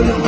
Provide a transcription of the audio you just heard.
Put